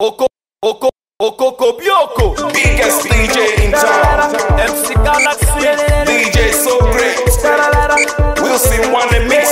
Oko, Oko, Oko, Kobioko. Biggest DJ in town. MC Galaxy. DJ so great. Wilson won the mix.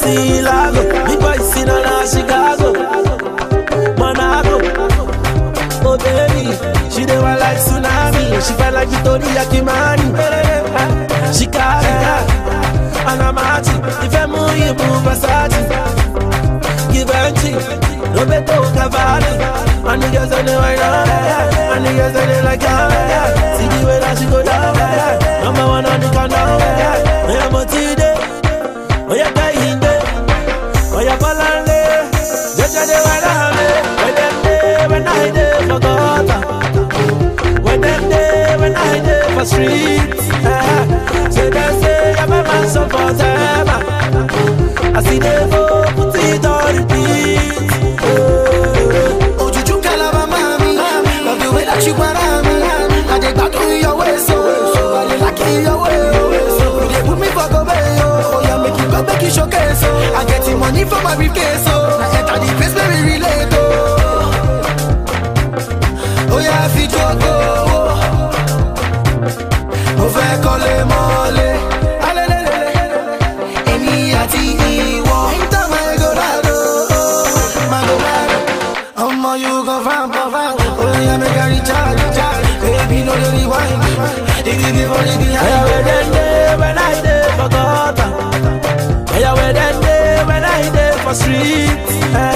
see Lago. Me boy see na na Chicago, Monaco. Oh baby, she dey want like tsunami. She fight like Victoria Kimani. She got it, and I'm at If I move, you move Versace. Give her cheek, Roberto Cavalli. And the girls on the way down, and the girls on the like down. See the way that she go down, number one on the countdown. street. Say they say I'm a man so forever. I see they go put it on repeat. Oh, juju kalaba mami, love the way that you want me. I dey gbadun your way so, I dey like your way. You dey put me for go bay oh, yeah make you go make you showcase so oh. I get the money for my briefcase oh, I enter the place where we relate oh. Oh yeah, fit go go. for street.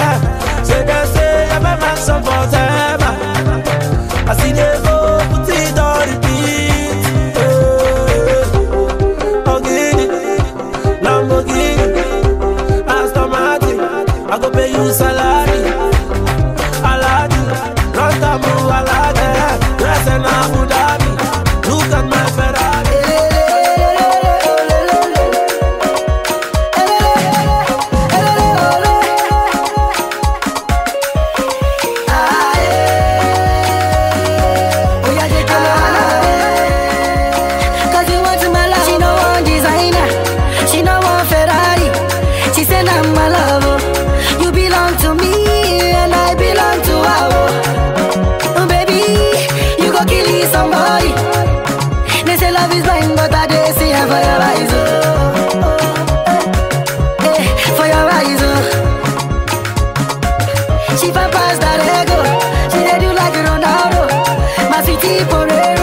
my city forever.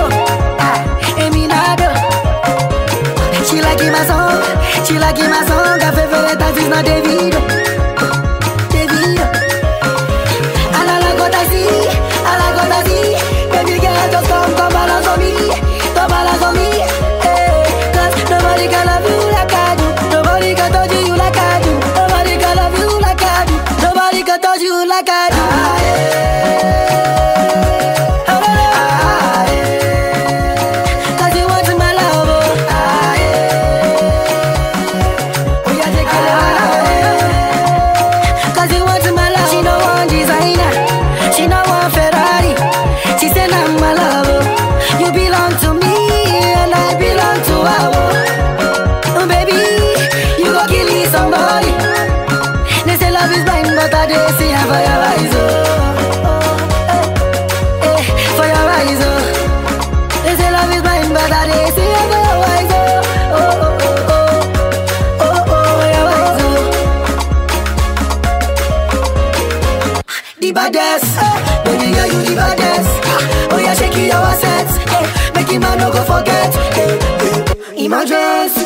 just.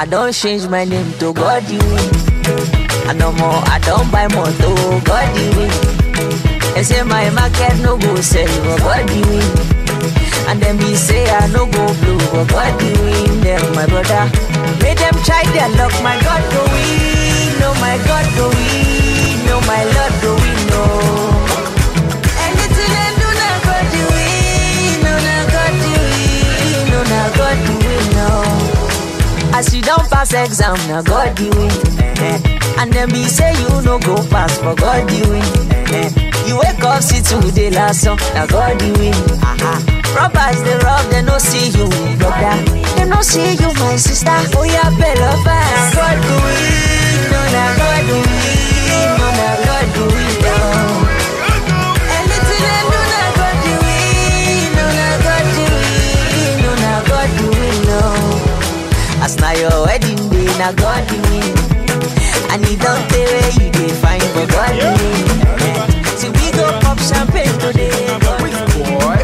I don't change my name to God I no more, I don't buy more to God you They say my market no go sell, for God you And then we say I no go blue, for God you win my brother Make them try their luck, my God do we? no my God do we? no my Lord do we? no As you don't pass exam, now God the win. Eh. And then be say you no go pass, for God the win. Eh. You wake up, see today last song, now God the win. Robbers, they rob, they no see you, brother. They no see you, my sister. Oh yeah, better beloved, God the win. No, oh, now God the win. na God in me. And he don't where you find for God in me. See we go pop champagne today. Boy,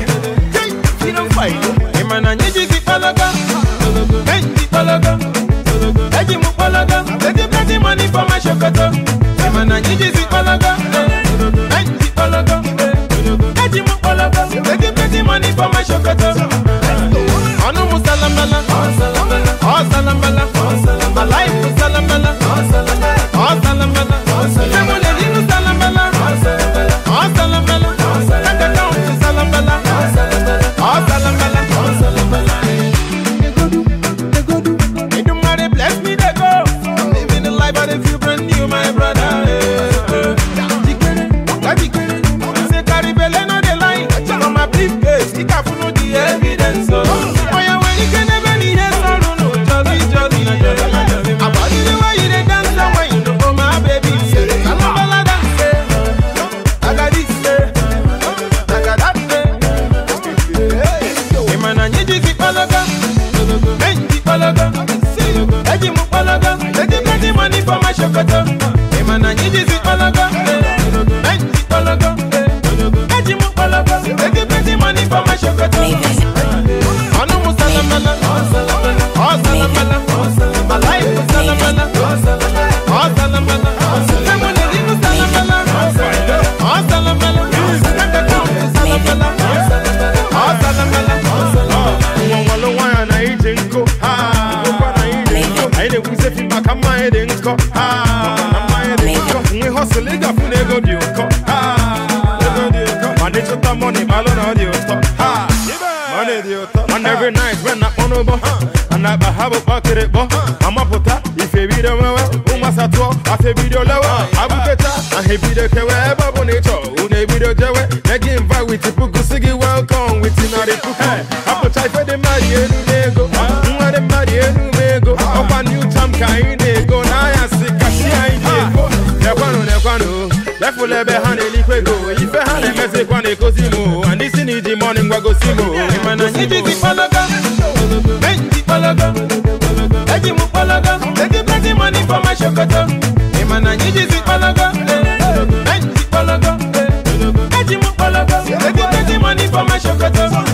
you don't fight. to keep on. ba habo bakere bo ama pota ife bi de mewe uma a afe bi de lewa abu peta ahe bi de kewe ba bo ne cho une bi de jewe ne gi invite with pugu sigi welcome with na de a apo chai fe de mari enu nego nwa de mari enu mego opa new time kai nego na ya sikashi ai nego ne kwano ne kwano lẹ́fù lẹ́bẹ̀ hàn ní ìpégo ìfẹ́ hàn ní mẹ́sẹ̀ kwan ní kó sí mu àníṣí ní ìdí mọ́ni ń gbàgó sí mu ìmọ̀ náà yíjú ti pọ́n pologo eji m pologo egibegi money for my shokoto ịma na anyị jizi pologo anyị jizi pologo eji m pologo egibegi money for my shokoto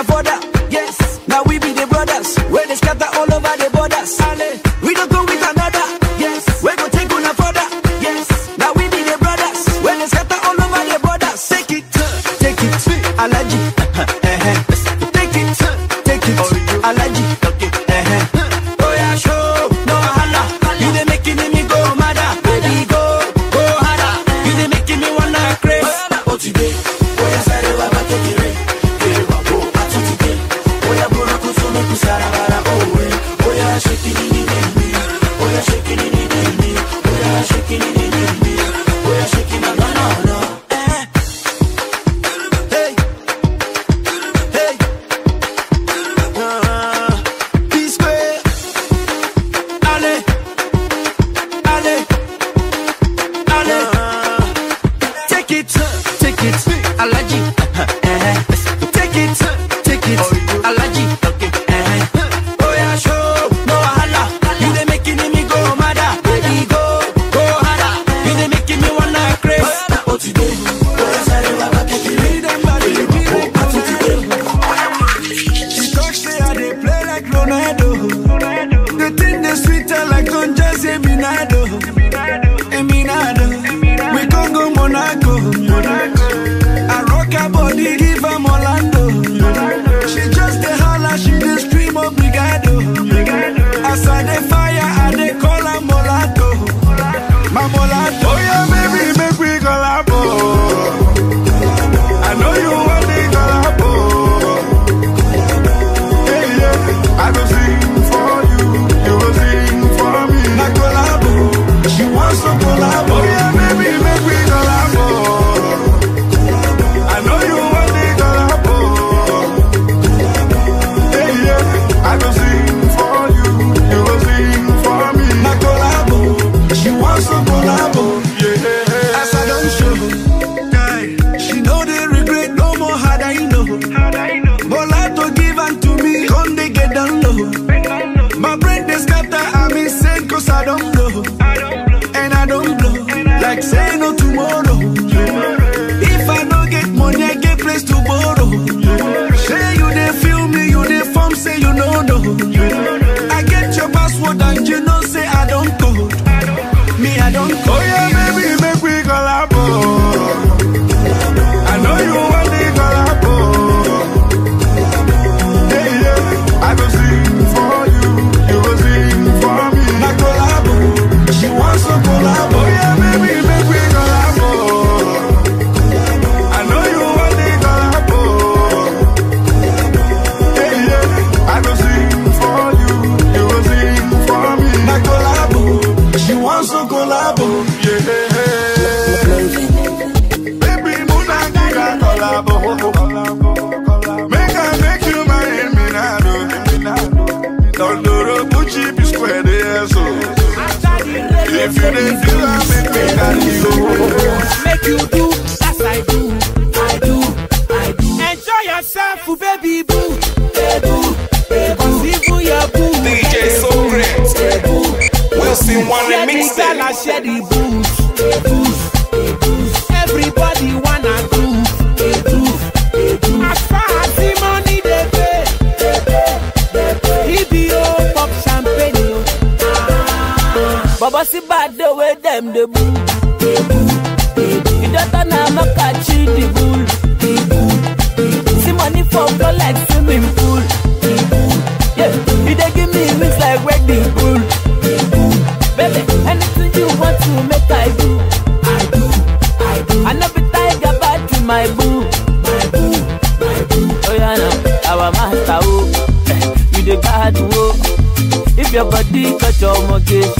afford that The thing that's sweeter like on just a minado, a minado, We can go Monaco. Monaco. I rock her body, give her Molando, She just a holler, she just scream obrigado. I I the fire. Baby, anything you want to make I do, I do, I I never tiger back to my boo, my boo, my boo. Oh yeah, now our master, oh, you the god, oh. If your body got your mortgage.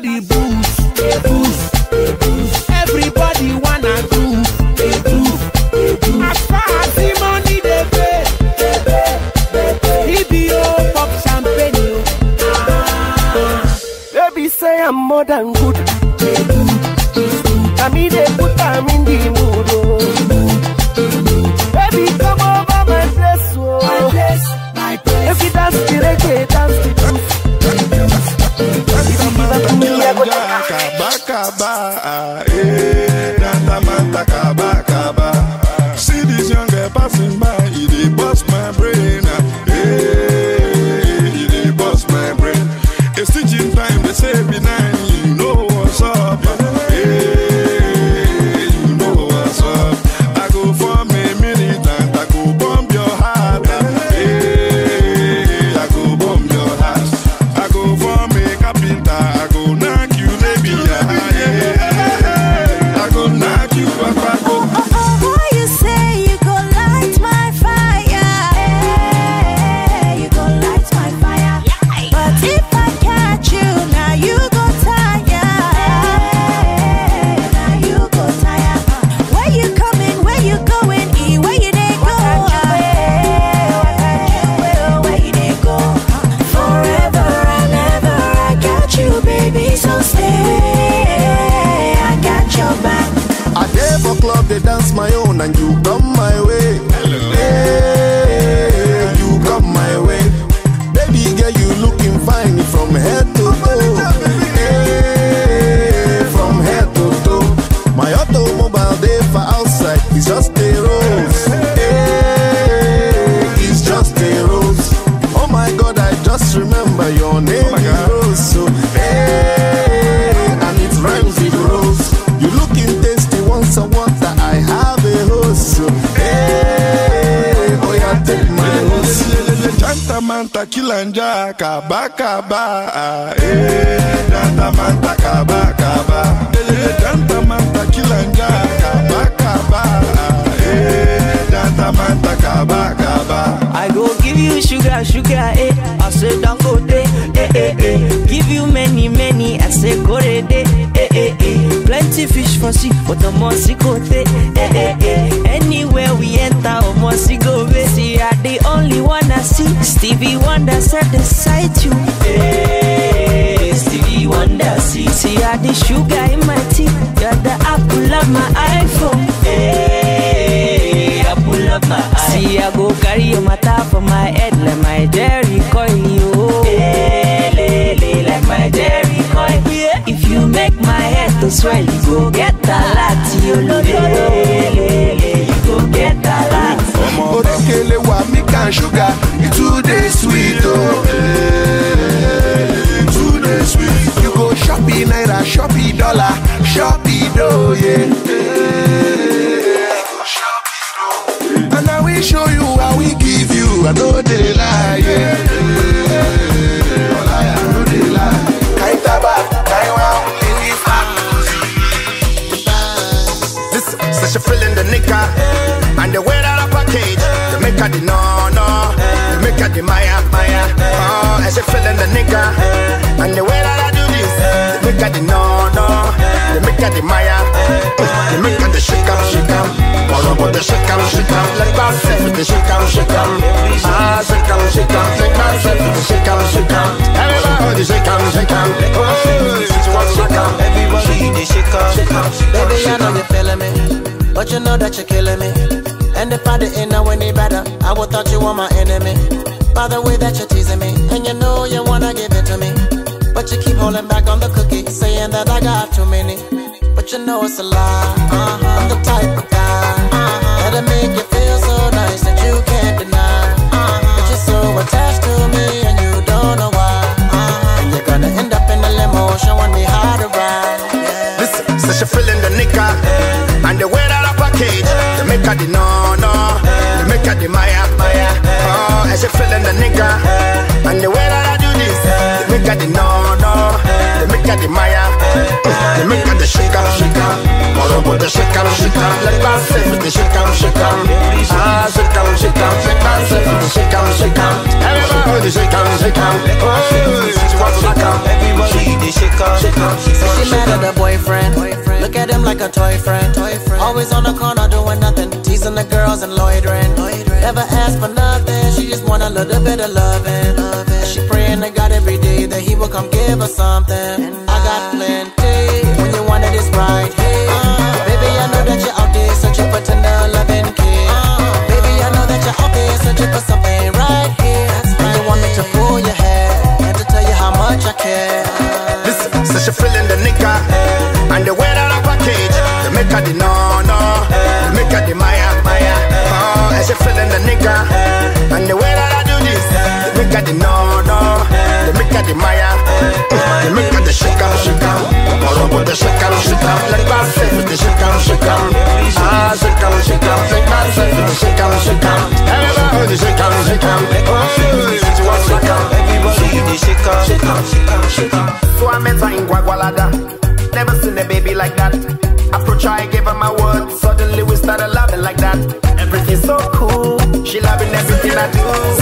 Daddy Boo. but omosigo tey eh eh eh anywhere we enter omosigo wey see i the only one i see stevie wonder said the same the no no. You make her the Maya Maya. Oh, and she feeling the nigga. And the way that I do this, you make her the no no. You make her the Maya. You make her the shake up shake up. All the shake up shake up. Like myself with the Ah, Like with the Everybody shake up shake up. Oh, shake up shake Everybody shake up shake Baby, I know you're feeling me, but you know that you're killing me. And if I didn't know any better, I would thought you were my enemy. By the way that you're teasing me, and you know you wanna give it to me. But you keep holding back on the cookie, saying that I got too many. But you know it's a lie. Uh -huh. I'm the type of guy uh -huh. that'll make you feel so nice that you can't deny. Uh -huh. But you're so attached to me, and you don't know why. And you're gonna end up in a limo showing me how to ride. Yeah. Listen, since so you're feeling the nigga, yeah. and the way that I package. Yeah make her the no no, they make her the Maya Maya. Oh, and she feeling the nigga, and the way that I do this, yeah. they make her the no no, they make her the Maya, yeah. they make her the shaker shaker. Morobo the shaker shaker, let us say with the shaker shaker. Ah, shaker shaker, let us say with the shaker shaker. Everybody shaker shaker, oh, she wants to knock Everybody the shaker shaker. She mad at her boyfriend. Look at him like a toy friend. Always on the corner little bit of loving. loving. She praying to God every day that He will come give her something. I got plenty when you wanted this right. here, uh, baby, I know that you're out there searching for tender loving care. Uh, baby, I know that you're out there searching for something right here. Right and you want me to pull your hair and to tell you how much I care. Listen, so a feeling the nigga hey. Eh, and the wear that I package. Hey. They make her the no no, hey. they make her the Maya Maya. Oh, and she feeling the nigga. Eh, the no no. They make her the Maya. They make her the shikam shikam. shaker. Morobo the shikam shikam, Let myself with the shikam shikam, Ah shikam shikam, Let myself with the shikam shikam, Everybody the shikam shikam, Oh, it's one the shikam shikam, So I met her in Guagualada. Never seen a baby like that. Approach her, I gave her my word. Suddenly we started loving like that. Everything's so cool. She loving everything I do.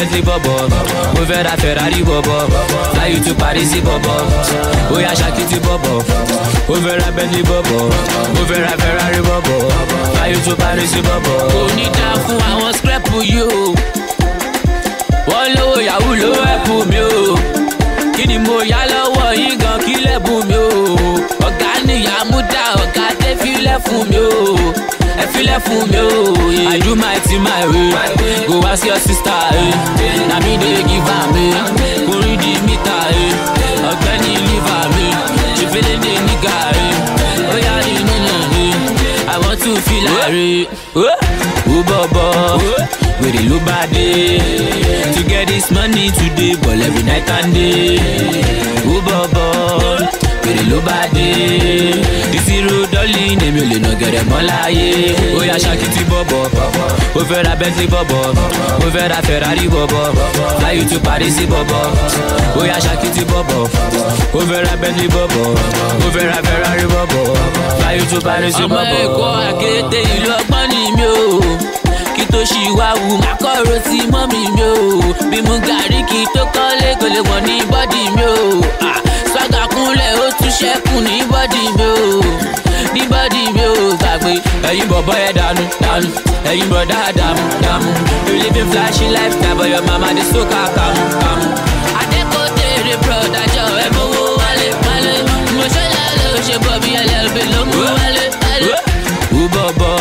Bentley bọ̀bọ̀ mo fẹ́ ra Ferrari bọ̀bọ̀ fly you to Paris bọ̀bọ̀ ó yá ṣàkìtì bọ̀bọ̀ mo fẹ́ ra Bentley bọ̀bọ̀ mo fẹ́ ra Ferrari bọ̀bọ̀ fly you to Paris bọ̀bọ̀. kò ní dáa fún àwọn scrap yìí o wọ́n lówó yahoo ló ẹ̀pù mi o Kini ni mo yá lọ́wọ́ yín gan kí lẹ́bùn mi o ọ̀gá nìyá mú dá ọ̀gá tẹ́fílẹ̀ fún mi o ẹ filẹ̀ fún mi o. I do my thing my way. Go ask your sister. Na mi dey give am. Kò rí di mítà. Ọ̀gbẹ́ni liver mi. Ṣèfẹ́lẹ́ dé nígà. Ó yá rí nínú mi. I want to feel like. Ó bọ̀bọ̀. wèrè ló bá dé. to get this money today ball every night and day. ó bọ̀ bọ̀ wèrè ló bá dé. this road lẹ́yìn èmi ò lè nà gẹ̀rẹ̀ mọ́ láyé ó yá ṣáàkì tí bọ̀bọ̀ ó fẹ́ ra bentley bọ̀bọ̀ ó fẹ́ ra ferrari bọ̀bọ̀ fly you to paris bọ̀bọ̀ ó yá ṣáàkì tí bọ̀bọ̀ ó fẹ́ ra bentley bọ̀bọ̀ ó fẹ́ ra ferrari bọ̀bọ̀ fly you to paris bọ̀bọ̀. ọmọ èkó àkété ìlú ọgbọ́n ni mi ò kí tó ṣì wá wù má kọ̀rọ̀ sí mọ́mì mi ò bí mu gàrí kí tó kọ́lé kò ní bọ́dì mi ò sọ́gà ó tún ṣẹ́kù ní bọ́dì mi ò ní bọ́dì mi ò gbàgbé ẹ̀yin bọ̀bọ̀ ẹ̀ dànù dànù ẹ̀yin bọ̀dá dàmú dàmú you living flashy lifestyle but your mama dey soak her kàmú kàmú. àdẹ́kọ̀ tèrè brọ̀dá jọ ẹ̀ mọ́wó wálé wálé mo ṣe lálẹ́ o ṣe bọ̀ bí llb ló mú wálé wálé. wú bọ̀bọ̀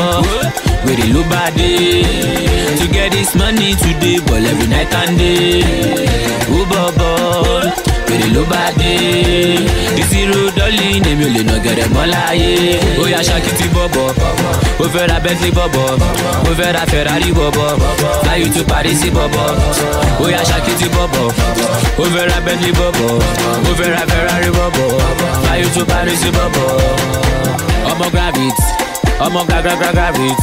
wèrè ló bá dé to get this money today but every night and day wú bọ̀bọ̀ wèrè ló bá dé ìṣirò lọ́ọ̀lì ni mi ò lè nà gẹ̀rẹ̀ mọ́ láyé. ó yá ṣáàkì ti bọ̀bọ̀ ó fẹ́ ra bentley bọ̀bọ̀ ó fẹ́ ra ferrari bọ̀bọ̀ fly you to paris bọ̀bọ̀ ó yá ṣáàkì ti bọ̀bọ̀ ó fẹ́ ra bentley bọ̀bọ̀ ó fẹ́ ra ferrari bọ̀bọ̀ fly you to paris bọ̀bọ̀. ọmọ gravit ọmọ gagragra gravit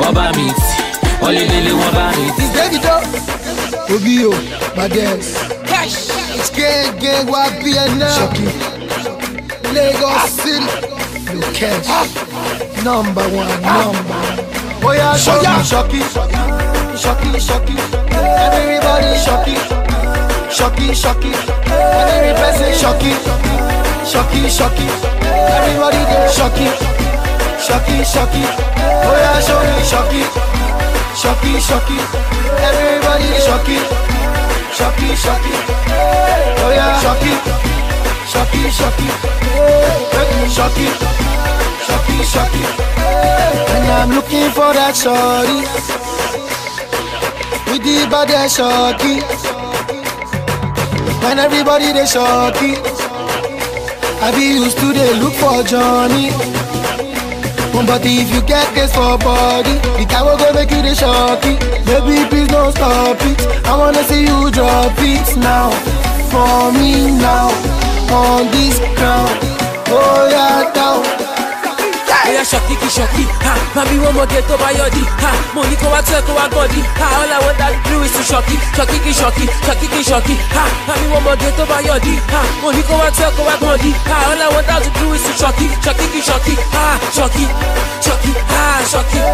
wọ́n bá mi tì wọ́n lé lé lé wọ́n bá mi tì. ìdẹ́gìdọ́ ògì yóò máa dẹ́ ẹ̀. It's Lagos City, Lukesh, number one, number one. Oh yeah, shocky, shocky, shocky, shocky. Everybody shocky, shocky, shocky. Every person shocky, shocky, shocky. Everybody get shocky, shocky, shocky. Oh yeah, show me shocky, shocky, shocky. Everybody shocky, shocky, shocky. Oh yeah, shocky shock it, shock it. Shock it, shock And I'm looking for that shorty with the baddest shorty. When everybody they shorty, I be used to they look for Johnny. But if you get this for body, the guy will go make you the shocky. Baby, please don't stop it. I wanna see you drop it now, for me now on this ground. Oh, yeah, down. Oya ṣọ̀kì kì shocky, ha mami more get over your di, ha Money come out, circle out, kó ha all I want that do is to shocky, shocky, kì shocky, ṣọ̀kì kì ṣọ̀kì, ha mami wọ́n mọ̀gẹ́ tó bá ha Money come out, circle out, kó ha all I want that do is to shocky, shocky, ha Shocky, shocky, ha Shocky.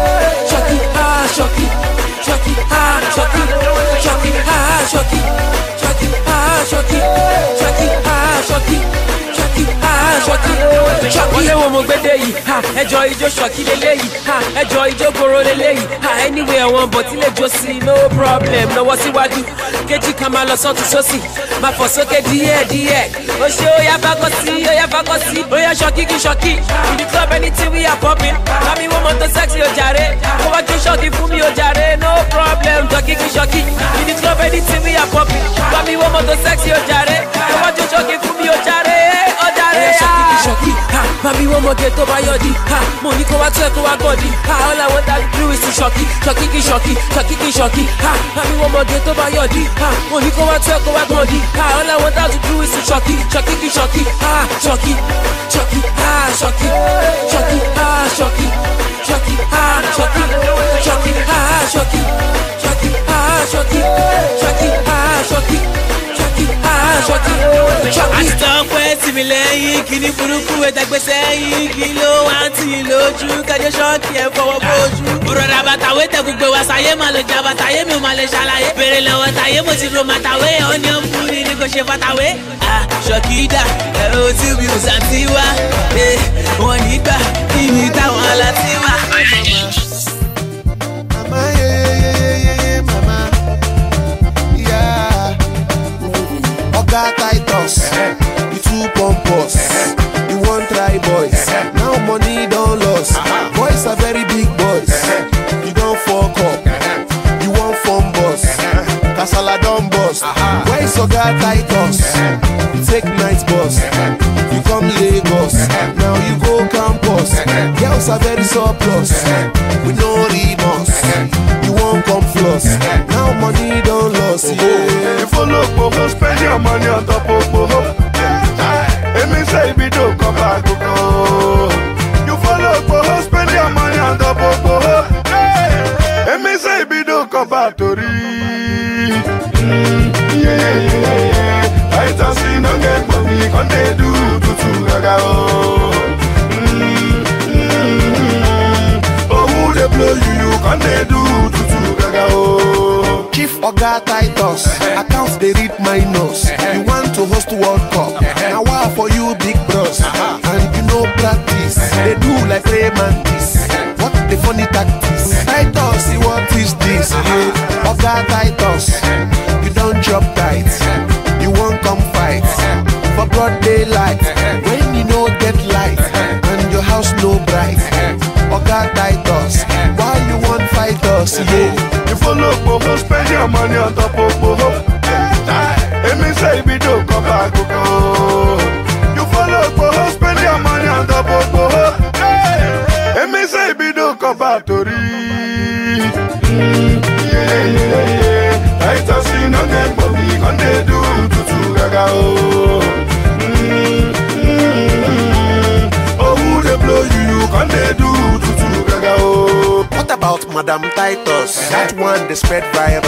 wo mo gbé dé yìí ha ẹjọ́ ijó ṣọ̀kí lélẹ́yìí ha ẹjọ́ ijó goro lélẹ́yìí ha anyway àwọn bọ̀ tí lè jó sí no problem lọ́wọ́ síwájú kejì kan máa lọ sọ́tún sósì máa fọ̀ sókè díẹ̀ díẹ̀ ó ṣe ó yá bákọ́ sí ó yá bákọ́ sí ó yá ṣọ̀kí kí ṣọ̀kí in the club anything we are popping mami wo mọ́tò sexy ó jàre kó wá jó ṣọ̀kí fún mi ó no problem ṣọ̀kí kí ṣọ̀kí in the club anything we are popping mami wo mọ́tò sexy ó jàre kó wá jó ṣọ̀kí fún mi ó jàre ó promote tó your yọdí ha Money ní kó wá tó ẹ kó wá gbọdí ha all i want to do is to shocky, shocky, kí shocky, shocky, kí shocky. ha àmì wọn mọ̀gẹ́ tó bá yọdí ha Money ní kó wá tó ẹ kó wá gbọdí ha all i want to do is to shocky, shocky, kí shocky. ha Shocky, shocky. ha Shocky, shocky. ha Shocky, shocky. ha Shocky, shocky. ha Shocky, shocky. ha ṣọkí ṣọkí ha ṣọkí. àtọ́pẹ́ tì mí lẹ́yìn kíní burúkú ẹ̀dá gbèsè yìí kí ló wá tì í lójú kájọ ṣọ́ọ̀kì ẹ̀ fọwọ́ bójú. òrọ̀dà bàtàwé tẹ gbogbo wa sáyé máa lọ jà bàtàyé mi ò máa lè ṣàlàyé. bèrè lọ́wọ́ táyé mo ti ro màtàwé ọ̀ní ọ̀pù ni ni kò ṣe fàtàwé. àṣọkìdà ẹ ò tí mi ò sàtì wá wọn nígbà kí ni táwọn aláti wá. sugar titus you too pompous you want try boys now money don't lose. boys are very big boys you don fuck up you wan form boss kasala don burst when sugar titus you take night bus you come lagos now you go campus girls are very surplus with no remorse you wan come floss now money see it. You follow Pogo, spend your money on top of Pogo. It means that if you don't come back, go. You follow Pogo, spend your money on top of Pogo. It means that if you don't come back, to mm, Yeah, yeah, don't get money, can they do tutu gaga oh. oh, who blow you, you can they do tutu gaga oh. chief oga titus uh-huh. accounts they read my nose uh-huh. you want to host world cup uh-huh. Now wa for you big bros and you no practice They do like Raymond what the funny tactics titus what is this oga titus you don't drop tight you won't come fight for broad daylight when you no get light and your house no bright oga titus why you want fight us yeah. fofo, spend your money on top of fofo. It means say we don't come back, You follow fofo, spend your money on top of fofo. It means say we don't come back to read. Yeah, yeah, yeah. Tight as do tutu gaga, o. Oh, who they blow you, can they do tutu gaga, o. about Madam Titus. That one they spread virus.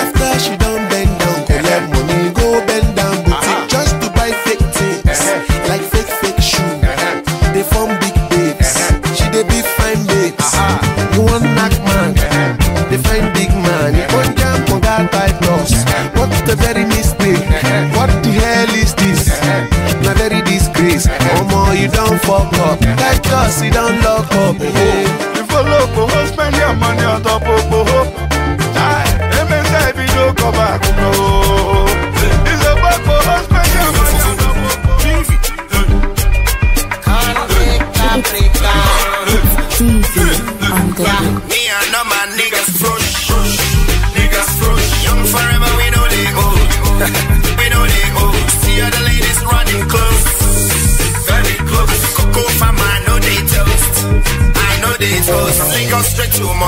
After she done bend down, collect let money, go bend down boutique uh-huh. just to buy fake things uh-huh. like fake fake shoes. Uh-huh. They form big babes. Uh-huh. She they be fine babes. You want knock man? They find big man. You want jam for that Titus? What's the very mistake? What the hell is this? uh Not very disgrace. Oh, more you don't fuck up. Titus, you don't lock up.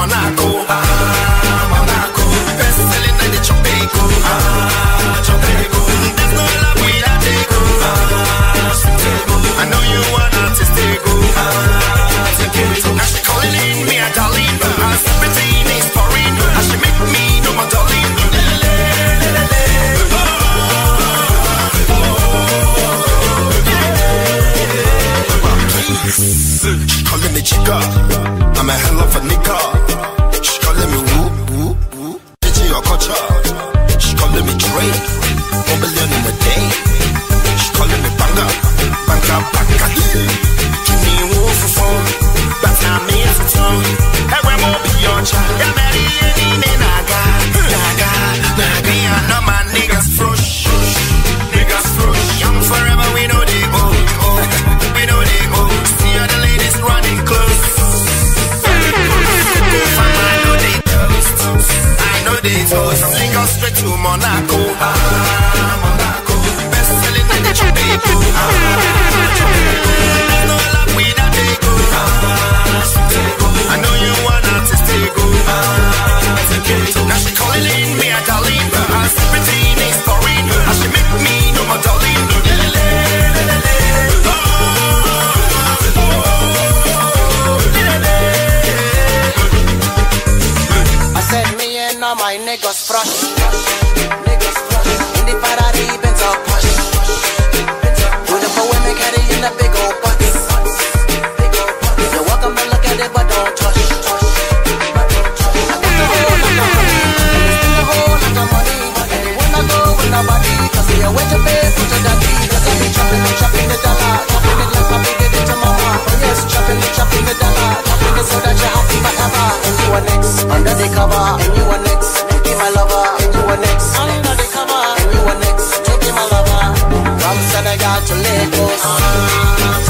Monaco. date house. straight to Monaco. Ah, Monaco. Best selling in Jamaica. Ah, no love we not take I know you want artistic. Ah, now she calling me. niggas fresh. Niggas fresh. In the Ferrari, Benz or Porsche. Beautiful women carrying the big old butts. You're welcome to look at it, but don't touch. I got the whole Yeah, wait to pay for the daddy Cause I be trapping, I'm trapping the dollar Trapping it like my baby did to mama Oh yes, trapping it, trapping the dollar Trapping it so that you're happy forever And you are next, under the cover And you are next to Lagos.